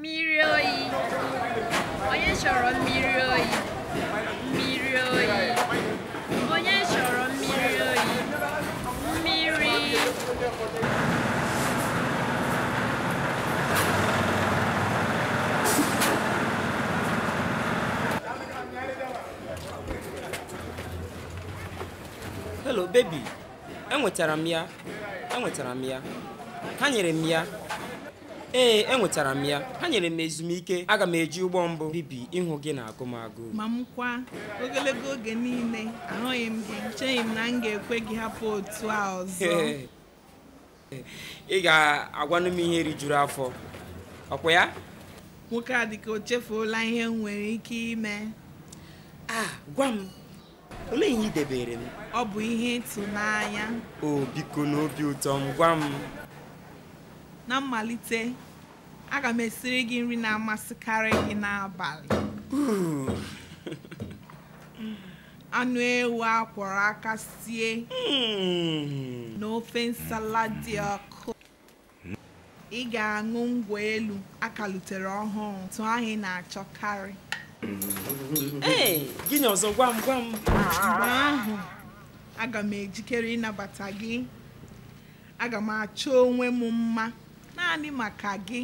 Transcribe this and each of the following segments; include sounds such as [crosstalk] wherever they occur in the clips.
mmiri oyi onye chọrọ mmiri oyi mmiri oyi Miri. hello baby enwetara m ya enwetara m ya ha nyere m ya ee enwetara m ya ha nyere m ezumike aga m eji ụgbọ mbụ bibi ịhụ gị na agụmagụ ma m kwa ogologo oge niile ahụghị m gị cheghị m na m ga-ekwe gị hapụ otu a ọzọ [laughs] ị ga-agwanụ m ihe rijuru afọ ọkwa ya nwoke a dịka o chefuola ihe m nwere ike ime a gwa m olee ihe ị debere m ọ bụ ihe ịtụnanya o biko ụtọ m gwa m na mmalite aga m esiri gị nri na-amasịkarị gị n'abalị [laughs] anụ ewu akwọrọ aka sie na ofe nsala dị ọkụ ị ga-aṅụ ngwa elu akalutere ọhụrụ tụ anyị na-achọkarị gịnị ọzọ gwa m gwa m mgbe ahụ aga m ejikere ịnabata gị aga m achọ onwe m mma naanị maka gị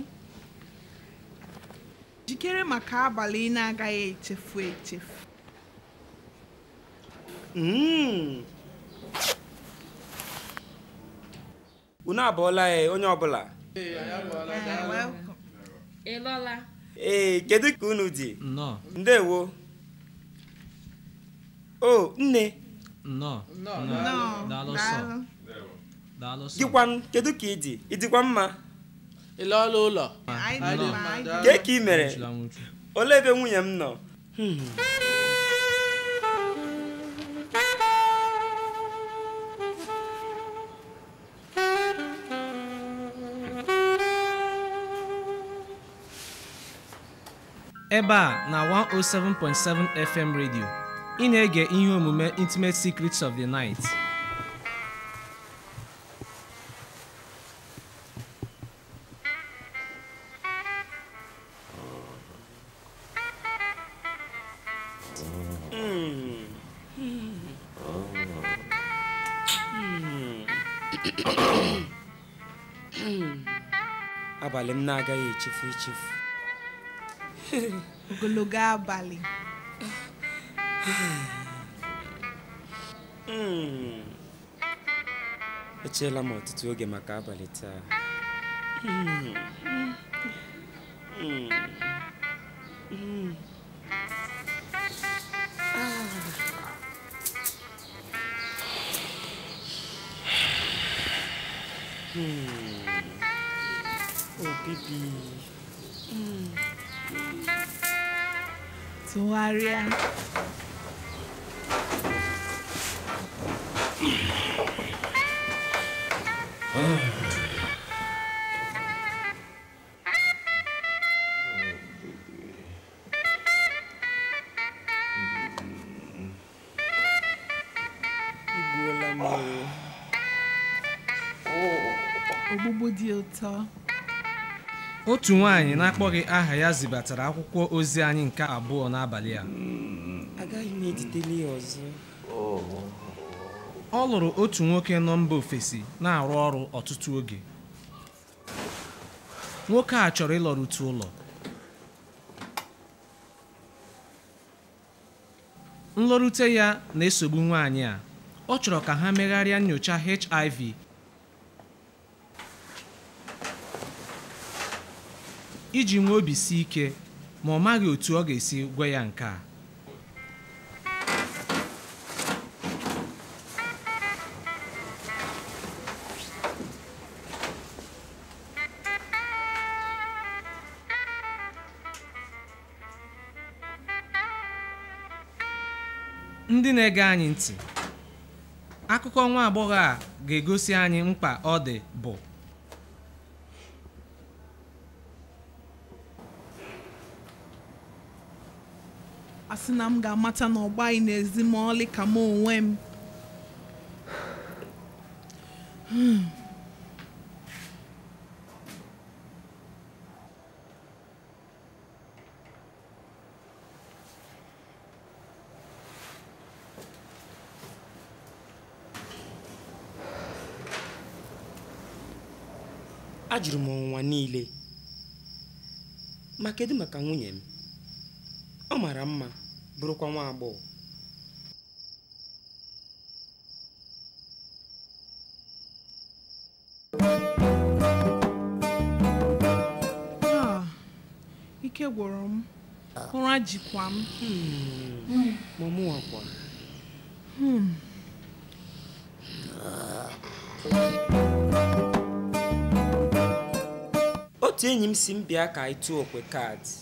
jikere maka abalị ị na-agaghị echefu echefu hmm. unu abụọla ya e, onye ọbụla ee kedu ka unu dị ndewo o nne gịkwanụ kedu ka ị dị ịdịkwa mma ọrụ ụlọ kee ka ị mere olee ebe nwunye m nọ ebe a na 107.7 FM redio ị na-ege ihe omume Intimate Secrets of the Night abalị m na-agaghị echefu echefu ogologo abalị hmm. echeela m ọtụtụ oge maka abalị taa Hmm. hmm. hmm. Oh, baby. Mm. To worry. Ogbogbo di ụtọ. otu nwanyị na-akpọghị aha ya zibatara akwụkwọ ozi anyị nke abụọ n'abalị a ọ lụrụ otu nwoke nọ mba ofesi na-arụ ọrụ ọtụtụ oge nwoke a chọrọ ịlọrute ụlọ nlọrute ya na-esogbu nwaanyị a ọ chọrọ ka ha megharịa nyocha HIV iji nwee obi si ike ma ọ maghị otu ọ ga-esi gwa ya nke a ndị na-ege anyị ntị akụkọ nwa agbọghọ a ga-egosi anyị mkpa ọ dị bụ asị na m ga-amata na ọgbaghị n'ezi ma ọlị ka m onwe m hmm. ajụrụ m ọnwụnwa niile ma kedu maka nwunye m ọ mara mma bụrụkwa nwa agbọghọ ah, ike gwụrụ m ụra jikwa m hmm, hmm. otu enyi m si m bịa ka anyị tụọ okwe kaadị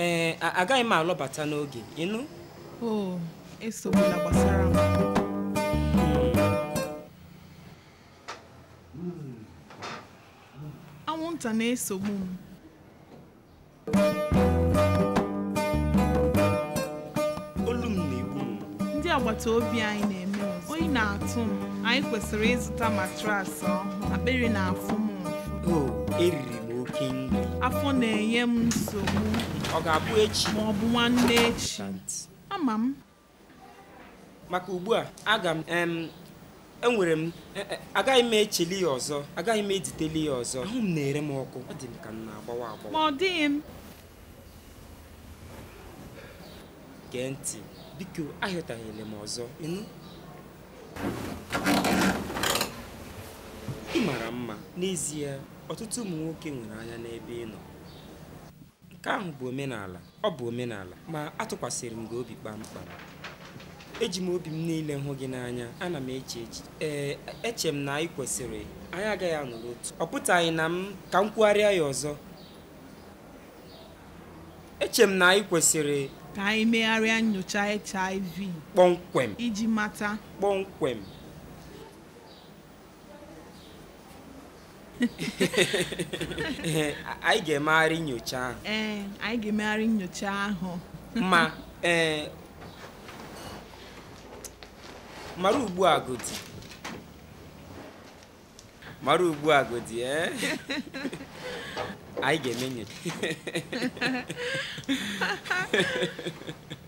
ee eh, agaghị m alọbata n'oge ịnụ o oh, esogbula gbasara m anwụnta na-esogbu m ndị agbata obi anyị na-eme oyi na-atụ m anyị kwesịrị ịzụta matrasị ọhụụ akpịrị na-afụ m oh, eriri m oke afọ na-enye m nsogbu ọ ga-abụ echi ma ọ bụ nwanne ama m maka ugbu a aga m enwere m e, e, agaghị m echeli ya ọzọ agaghị m ejiteli ya ọzọ ahụ m na-ere m ọkụ ọ dị m ka m na-agbawa agbawa ma ọ dịghị m gee ntị biko ahịọtaghịla m ọzọ ị mara mma n'ezie ọtụtụ ụmụ nwoke nwere anya n'ebe ị nọ nke ahụ bụ omenala ọ bụ omenala ma atụkwasịrị m gị obi kpamkpam eji m obi m niile hụ gị n'anya ana m eche echi ee eche m na anyị kwesịrị anyị agaghị anọ otu ọ pụtaghị na m ka m kwugharịa ya ọzọ eche m na anyị kwesịrị ka anyị megharịa nyocha HIV kpọmkwem iji mata kpọmkwem [laughs] anyị ga-emegharị nyocha ahụ ee anyị ga-emegharị nyocha ahụ ma ee mara ugbu a godi mara ugbu a godi ee anyị ga-eme nyocha [laughs]